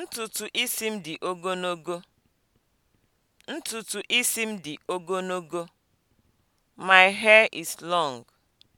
Ntutu isi m dị ogologo. Ntutu isi m dị ogologo. My hair is long.